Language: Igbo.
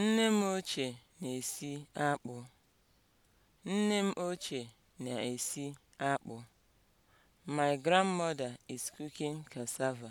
Nne m ochie na-esi akpụ. Nne m ochie na-esi akpụ. My grandmother is cooking cassava.